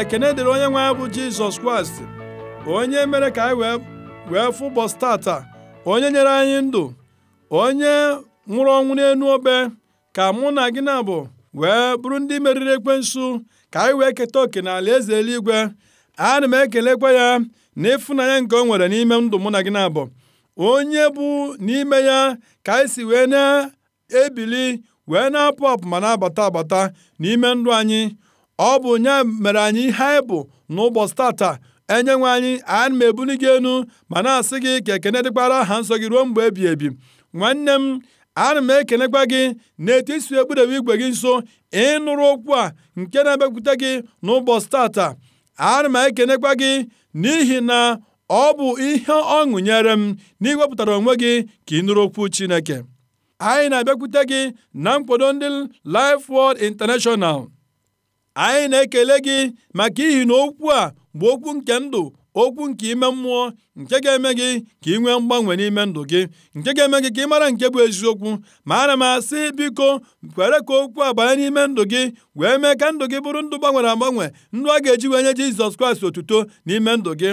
ekene dịrị onye nwe bụ jizọs kraịst onye mere ka anyị wee fụ ụbọchị onye nyere anyị ndụ onye nwụrụ ọnwụ n'elu obe ka mụ na gị na bụ wee bụrụ ndị meriri ekwensu ka anyị wee keta oke n'ala eze eluigwe na m ekelekwa ya na ịfụnanya nke o nwere n'ime ndụ mụ na gị na-abụ onye bụ n'ime ya ka anyị si wee na-ebili wee na-apụ apụ ma na-abata abata n'ime ndụ anyị Ọ bụ nye mere anyị ihe anyị bụ n'ụbọchị tata. Enyenwe anyị, ana m ebuli gị elu ma na-asị gị ka ekene dịkwara aha nsọ gị ruo mgbe ebighị ebi. Nwanne m, ana m ekenekwa gị n'etu i si igwe gị nso ịnụrụ okwu a nke na-abịakwute gị n'ụbọchị tata. Ana m ekenekwa gị n'ihi na ọ bụ ihe ọṅụ nyere m na onwe gị ka ị nụrụ okwu Chineke. Anyị na-abịakwute gị na nkwado ndị Life Word International. anyị na-ekele gị maka ihi na okwu a bụ okwu nke ndụ okwu nke ime mmụọ nke ga-eme gị ka ị nwee mgbanwe n'ime ndụ gị nke ga-eme gị ka ị mara nke bụ eziokwu ma ana m asị biko kwere ka okwu a banye n'ime ndụ gị wee mee ka ndụ gị bụrụ ndụ gbanwere agbanwe ndụ a ga-eji wee nye Jizọs Kraịst otuto n'ime ndụ gị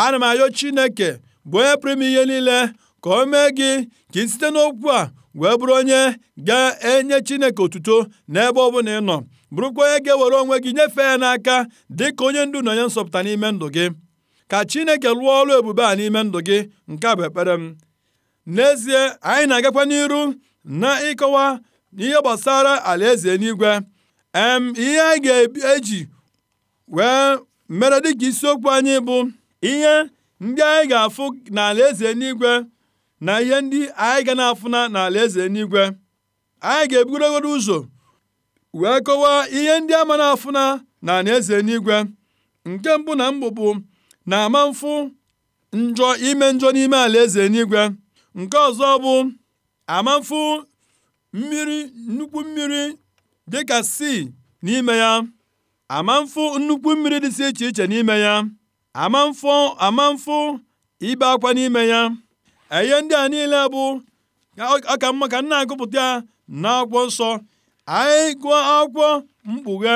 ana m ayọ Chineke bụ onye pụrụ ihe niile ka o mee gị ka ị site n'okwu a wee bụrụ onye ga-enye Chineke otuto n'ebe ọ bụla ị nọ bụrụkwa onye ga-ewere onwe gị nyefee ya n'aka dịka onye ndu na onye nsọpụta n'ime ndụ gị ka Chineke lụọ ọrụ ebube a n'ime ndụ gị nke a bụ ekpere m n'ezie anyị na-agakwa n'iru na ịkọwa ihe gbasara alaeze nigwe em ihe anyị ga-eji wee mere dịka isiokwu anyị bụ ihe ndị anyị ga-afụ n'ala eze n'igwe na ihe ndị anyị ga na-afụna n'ala eze n'igwe anyị ga-ebugoro ụzọ wee kọwaa ihe ndị ama na-afụna na eze n'igwe nke mbụ na bụ na-ama mfụ njọ ime njọ n'ime ala eze n'igwe nke ọzọ bụ ama mfụ mmiri nnukwu mmiri dịka si n'ime ya ama mfụ nnukwu mmiri dịsị iche iche n'ime ya ama mfụ ibe akwa n'ime ya ihe ndị a niile bụ ọka mma ka m na-agụpụta ya n'akwụkwọ nsọ anyị gụọ akwụkwọ mkpughe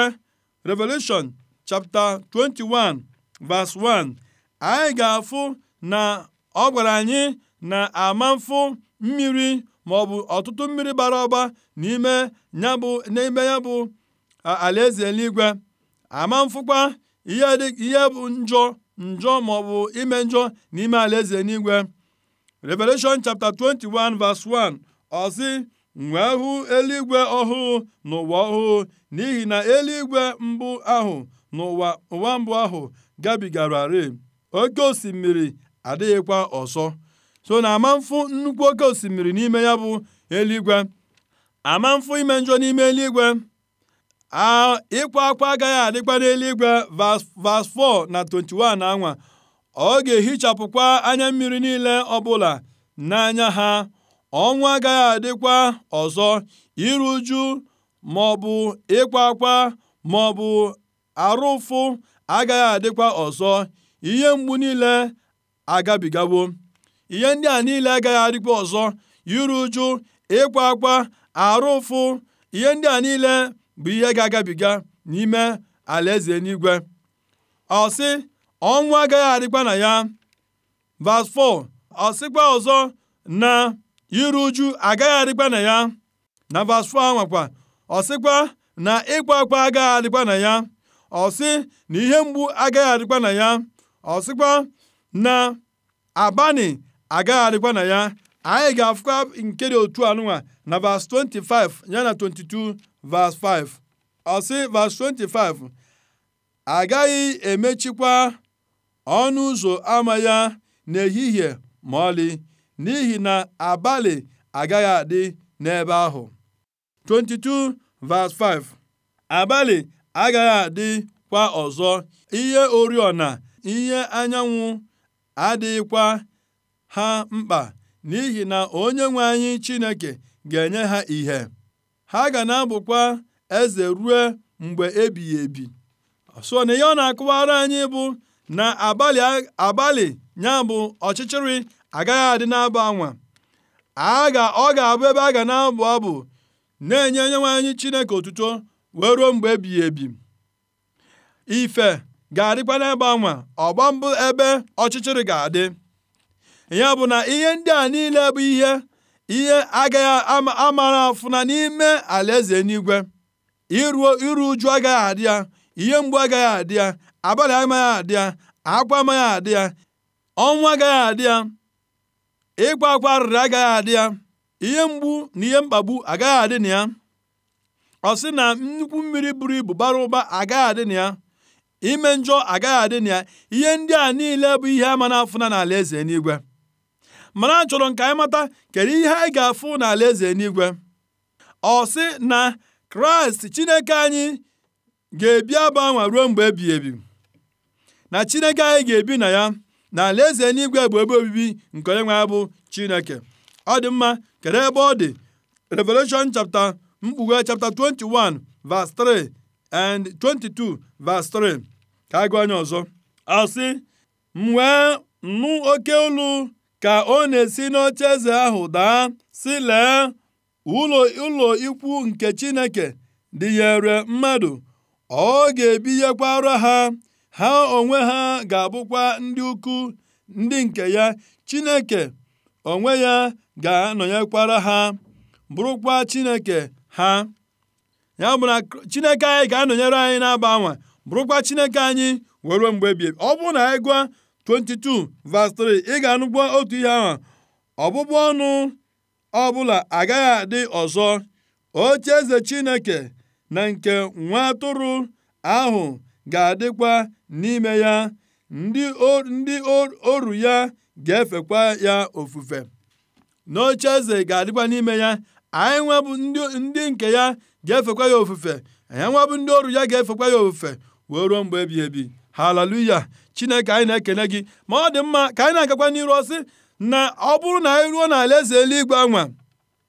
Revelation chapter 21 verse 1 anyị ga-afụ na ọ gwara anyị na amamfụ mmiri maọbụ ọtụtụ mmiri bara ọba n'ime ya bụ n'ime ya bụ alaeze eluigwe ama mfụkwa ihe bụ njọ njọ maọbụ ime njọ n'ime alaeze eluigwe Revelation chapter 21 verse 1 ọzi nwee hụ eluigwe ọhụụ na ụwa ọhụụ, n'ihi na eluigwe mbụ ahụ na ụwa mbụ ahụ gabigararị. Oke osimiri adịghịkwa ọzọ. So na ama nnukwu oke osimiri n'ime ya bụ eluigwe ama ime njọ n'ime eluigwe a ịkwa akwa agaghị adịkwa n'eluigwe vas 4 na 21 anwa ọ ga-ehichapụkwa anya mmiri niile ọbụla n'anya ha ọnwụ agaghị adịkwa ọzọ iru uju maọbụ ịkwa akwa maọbụ arụ ụfụ agaghị adịkwa ọzọ ihe mgbu niile agabigawo ihe ndị a niile agaghị adịkwa ọzọ iru uju ịkwa akwa arụ ụfụ ihe ndị a niile bụ ihe ga-agabiga n'ime alaeze n'igwe. ọsị ọnwụ agaghị adịkwa na ya Vas 4 ọzọ na iru uju agaghị adịkwa na ya na vas nwakwa ọ ọsịkwa na ịkwa akwa agaghị adịkwa na ya ọsị na ihe mgbu agaghị adịkwa na ya ọsịkwa na abani agaghị adịkwa na ya anyị ga-afụkwa nke dị otu anụnwa na vas 25 ya na 22 vas 5 ọsị 25 agaghị emechikwa ọnụ ụzọ ama ya n'ehihie ma ọlị n'ihi na abalị agaghị adị n'ebe ahụ. 5 Abalị agaghị adị kwa ọzọ, ihe oriọna ihe anyanwụ adịghịkwa ha mkpa n'ihi na onye nwe anyị Chineke ga-enye ha ìhè. Ha ga na-abụkwa eze ruo mgbe ebighị ebi. So na ihe ọ na akụwara anyị bụ na abalị abalị ya bụ ọchịchịrị agaghị adị na-abụ anwa a ga ọ ga-abụ ebe a ga na-abụ abụ na-enye onyenwe anyị Chineke otuto wee ruo mgbe ebighị ebi ife ga-adịkwa n'ebe anwa ọgba mbụ ebe ọchịchịrị ga-adị ya bụ na ihe ndị a niile bụ ihe ihe agaghị amara afụna n'ime alaeze n'igwe iruo iru uju agaghị adị ya ihe mgbu agaghị adị ya abalị amaghị adị ya akwa amaghị adị ya ọnwụ agaghị adị ya Ịkwa akwa arịrị agaghị adị ya, ihe mgbu na ihe mkpagbu agaghị adị na ya. Ọ sị na nnukwu mmiri buru ibu bara ụba agaghị adị na ya. Ime njọ agaghị adị na ya. Ihe ndị a niile bụ ihe ama na-afụna n'ala eze n'igwe. Mana a chọrọ ka anyị mata kedu ihe anyị ga-afụ ala eze n'igwe. Ọ sị na Kraịst Chineke anyị ga-ebi abụ anwa ruo mgbe ebighị ebi na Chineke anyị ga-ebi na ya na alaeze n'igwe bụ ebe obibi nke onye nwe bụ chineke ọ dị mma kedu ebe ọ dị revelation chapter mkpughe chapter 21 verse 3 and 22 verse 3 ka agụ anya ọzọ asị m wee nụ oke olu ka ọ na-esi n'oche eze ahụ daa si lee ụlọ ụlọ ikwu nke chineke dịnyere mmadụ ọ ga-ebinyekwara ha ha onwe ha ga-abụkwa ndị ukwu ndị nke ya, Chineke onwe ya ga-anọnyekwara ha, bụrụkwa Chineke ha. Ya bụ na Chineke anyị ga-anọnyere anyị na-aba anwa, bụrụkwa Chineke anyị were mgbe Ọ bụrụ na anyị gwa 22 verse 3 ị ga-anụkwa otu ihe ahụ ọbụbụ ọnụ ọbụla agaghị adị ọzọ oche eze Chineke na nke nwa atụrụ ahụ ga-adịkwa n'ime ya, ndị oru ya ga-efekwa ya ofufe. N'ocheeze ga-adịkwa n'ime ya, anyị nwa ndị nke ya ga-efekwa ya ofufe, anyị nwebụ ndị oru ya ga-efekwa ya ofufe wee ruo mgbe ebighị ebi. Haleluya! Chineke anyị na-ekele gị ma ọ dị mma ka anyị na-agakwa n'iru ọsị na ọ bụrụ na anyị ruo eze eluigwe anwa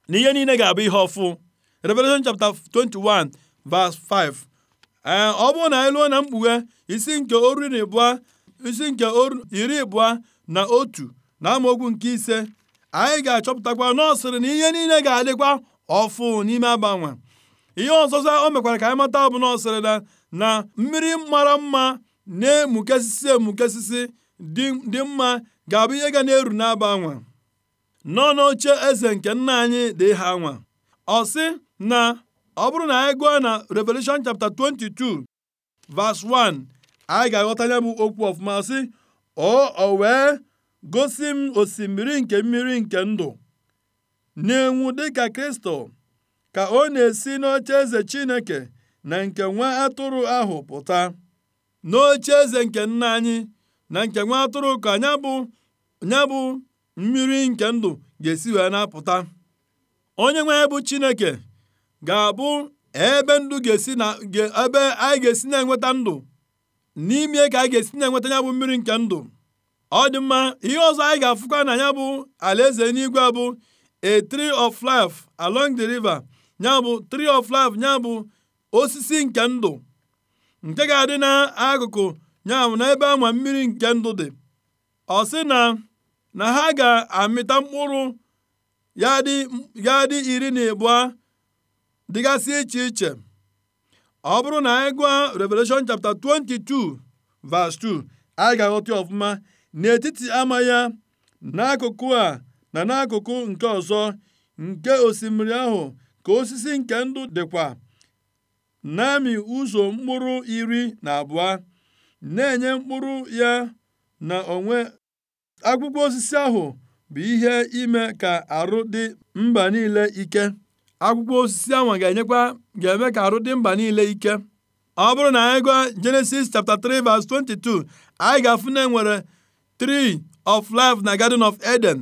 na ihe niile ga-abụ ihe ọfụ. Revelation chapter 21 verse 5 ee eh, ọ bụrụ na anyị lụọ na mkpughe isi nke oru na ịbụa isi nke oru iri ịbụa na otu na amaokwu nke ise anyị ga-achọpụtakwa n'ọsịrị na ihe niile ga-adịkwa ọfụ n'ime agbanwe ihe ọzọzọ o mekwara ka anyị mata bụ na na mmiri mara mma na-emukesisi emukesisi dị mma ga-abụ ihe ga na-eru n'aba anwa nọ n'oche eze nke nna anyị dị ha anwa ọ sị na ọ bụrụ na anyị gụọ na Revelation chapter 22 verse 1 anyị ga-aghọta ya bụ okwu ọfụma sị ọ wee gosi m osimiri nke mmiri nke ndụ na-enwu dịka Kristo ka ọ na-esi n'oche eze Chineke na nke nwa atụrụ ahụ pụta n'oche eze nke nna anyị na nke nwa atụrụ ka nya bụ nya bụ mmiri nke ndụ ga-esi wee na-apụta onye nwe bụ Chineke ga-abụ ebe ndụ ga-esi na ebe anyị ga-esi na-enweta ndụ n'ime ka anyị ga-esi na-enweta ya bụ mmiri nke ndụ ọ dị mma ihe ọzọ anyị ga-afụkwa na ya bụ alaeze n'igwe bụ a tree of life along the river ya bụ tree of life ya bụ osisi nke ndụ nke ga-adị n'akụkụ ya bụ n'ebe ama mmiri nke ndụ dị ọ sị na na ha ga-amịta mkpụrụ ya dị iri na abụọ dịgasị iche iche ọ bụrụ na anyị gụọ Revelation chapter 22 verse 2 anyị ga-aghọta ọfụma n'etiti ama ya n'akụkụ a na n'akụkụ nke ọzọ nke osimiri ahụ ka osisi nke ndụ dịkwa na ụzọ mkpụrụ iri na abụọ na-enye mkpụrụ ya na onwe akwụkwọ osisi ahụ bụ ihe ime ka arụ dị mba niile ike akwụkwọ osisi anwa ga-enyekwa ga-eme ka arụ dị mba niile ike ọ bụrụ na anyị gụọ Genesis chapter 3 verse 22 anyị ga-afụ na enwere tree of life na garden of Eden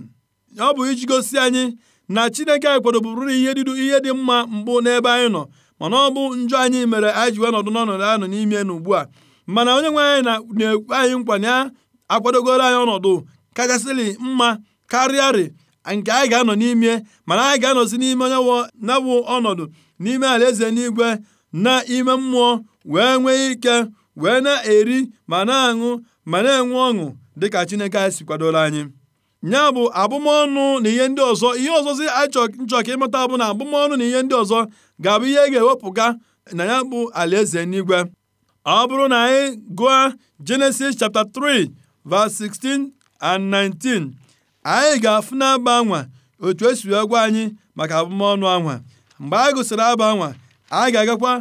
ọ bụ iji gosi anyị na Chineke anyị na ihe dịdu ihe dị mma mbụ n'ebe anyị nọ mana ọ bụ njọ anyị mere anyị ji wee nọdụ n'ọnọdụ n'ime na ugbu a mana onye nwe anyị na-ekwe anyị nkwa na ya akwadogoro anyị ọnọdụ kachasịlị mma karịarị nke anyị ga-anọ n'ime mana anyị ga-anọzi n'ime onye na ọnọdụ n'ime alaeze n'igwe na ime mmụọ wee nwee ike wee na-eri ma na-aṅụ ma na-enwe ọṅụ dịka Chineke anyị si kwadoro anyị ya bụ abụmọnụ na ihe ndị ọzọ ihe ọzọzi nchọ ka ịmụta bụ na abụmọnụ na ihe ndị ọzọ ga-abụ ihe ga-ewepụga na ya bụ alaeze n'igwe ọ bụrụ na anyị gụọ Genesis chapta 3 verse 16 and 19 Anyị ga-afụ n'abụ anwa otu esi wee gwa anyị maka abụmọnụ anwa. Mgbe anyị gụsịrị aba anwa, anyị ga-agakwa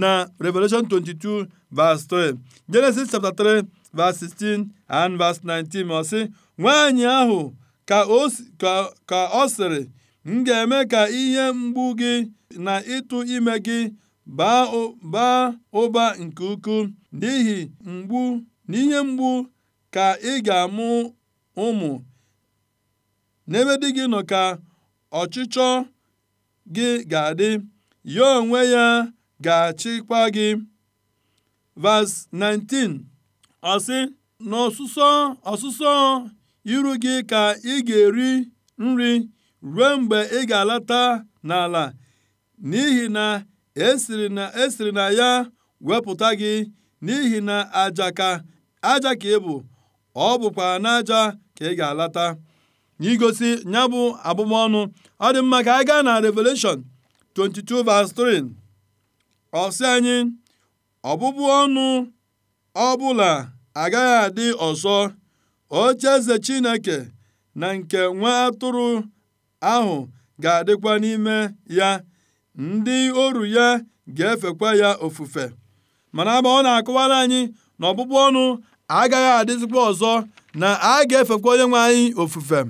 na Revelation 22 vs 3, Genesis chapter 3 verse 16 and 19 ma ọ sị, Nwaanyị ahụ ka ọ sịrị, m ga-eme ka ihe mgbu gị na ịtụ ime gị baa ụba nke ukwuu n'ihi mgbu n'ihe mgbu ka ị ga-amụ ụmụ N'ebe di gị nọ ka ọchịchọ gị ga-adị, ya onwe ya ga-achịkwa gị. Vas 19 ọsị sị, “N'ọsụsọ iru gị ka ị ga-eri nri ruo mgbe ị ga-alata n'ala, n'ihi na e esiri e na ya wepụta gị, n'ihi na aja ka ị bụ, ọ bụkwa n'aja ka ị ga-alata.” n'igosi ya bụ abụmọnụ ọ dị mma ka anyị gaa na Revelation 22:3 ọ sị anyị ọbụbụ ọnụ bụla agaghị adị ọzọ ze Chineke na nke nwa atụrụ ahụ ga-adịkwa n'ime ya ndị oru ya ga-efekwa ya ofufe mana agba ọ na-akọwara anyị na ọbụbụ ọnụ agaghị adịzikwa ọzọ na a ga-efekwa onye nwe anyị ofufe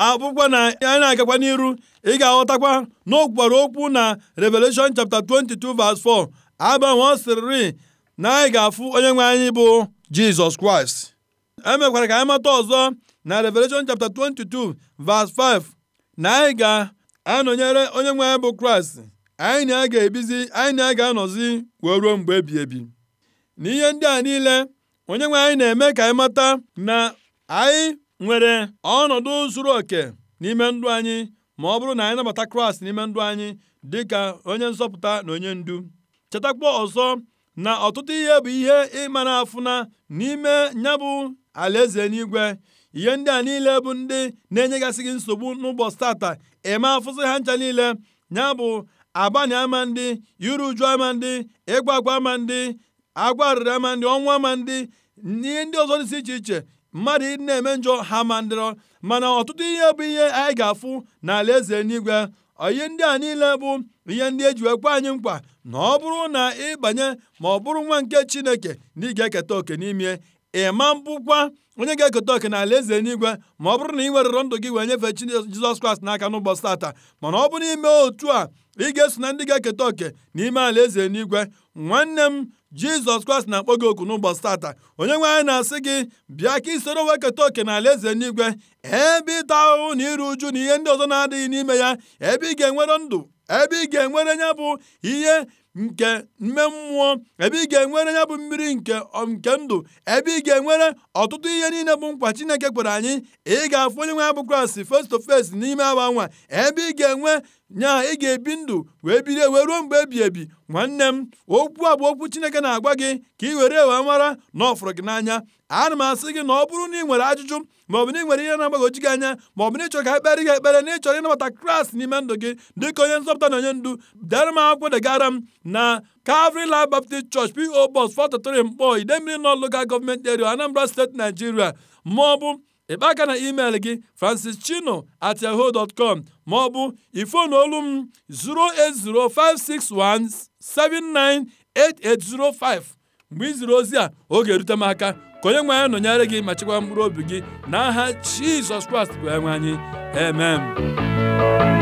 abụkwa na anyị na-agakwa n'iru ị ga-aghọtakwa na o kwukwara okwu na Revelation chapta 22 verse 4 agbanwe ọ sịrịrị na anyị ga-afụ onye nwe anyị bụ Jizọs Kraịst emekwara ka anyị mata ọzọ na Revelation chapta 22 verse 5 na anyị ga-anọnyere onye nwe anyị bụ Kraịst anyị na ga-ebizi anyị na ga-anọzi wee ruo mgbe ebi ebi n'ihe ndị a niile onye nwe anyị na-eme ka anyị mata na anyị nwere ọnọdụ zuruoke n'ime ndụ anyị ma ọ bụrụ na anyị nabata Kraịst n'ime ndụ anyị dịka onye nzọpụta na onye ndu chetakwa ọzọ na ọtụtụ ihe bụ ihe ịma na-afụna n'ime nyabụ bụ alaeze n'igwe ihe ndị a niile bụ ndị na-enyegasị gị nsogbu n'ụbọchị tata eme afụsị ha ncha niile nya bụ abani ama ndị iru uju ama ndị ịgwa agwa ama ndị agwa arịrị ama ndị ọnwụ ama ndị ihe ndị ọzọ dịsị iche iche mmadụ na-eme njọ ha ma ndịrọ mana ọtụtụ ihe bụ ihe anyị ga-afụ n'ala eze n'igwe ihe ndị a niile bụ ihe ndị eji ekwe anyị mkpa na ọ bụrụ na ị banye ma ọ bụrụ nwa nke chineke na ị ga-eketa oke n'ime ị ma mbụkwa onye ga-eketa oke n'ala eze n'igwe ma ọ bụrụ na ị werere ndụ gị wee nyefee chi Jizọs Kraịst n'aka n'ụbọchị tata mana ọ bụrụ ime otu a ị ga-eso na ndị ga-eketa oke n'ime ala eze n'igwe nwanne m jizọs kraịst na-akpọ gị oku n'ụbọchị tata onye nwe anyị na-asị gị bịa ka isoro weketa oke ala eze n'igwe ebe ịta ahụhụ na iru uju na ihe ndị ọzọ na-adịghị n'ime ya ebe ị ga-enwere ndụ ebe ị ga-enwere ya bụ ihe nke mme mmụọ ebe ị ga-enwere ya bụ mmiri nke nke ndụ ebe ị ga-enwere ọtụtụ ihe niile bụ nkwa Chineke kwere anyị ị ga-afụ onye nwe ya bụ Kraịst face to face n'ime awa nwa ebe ị ga-enwe nyaa ị ga-ebi ndụ wee biri wee ruo mgbe ebi ebi nwanne m okwu a bụ okwu Chineke na-agwa gị ka ị were wee mara na ọ gị n'anya ana m asị gị na ọ bụrụ na ị nwere ajụjụ maọbụ na ị nwere ihe na-agbagoji gị anya bụ na ịchọrọ ka ekpere gị ekpere na ịchọrọ ịnabata Kraịst n'ime ndụ gị dịka onye nzọpụta na onye ndu dere m akwụkwọ degara m na Calvary Life Baptist Church PO Box 433 Mkpọ Idemmiri nọ Local Government Area Anambra State Nigeria maọbụ ịkpa aka na email gị francis chino at yahoo dot com maọbụ ifon olu m 08056179805 mgbe ị ozi a oge erute m aka ka onye nwe anyị nọnyere gị ma chekwa mkpụrụ obi gị n'aha Jizọs Kraịst bụ enwe anyị amen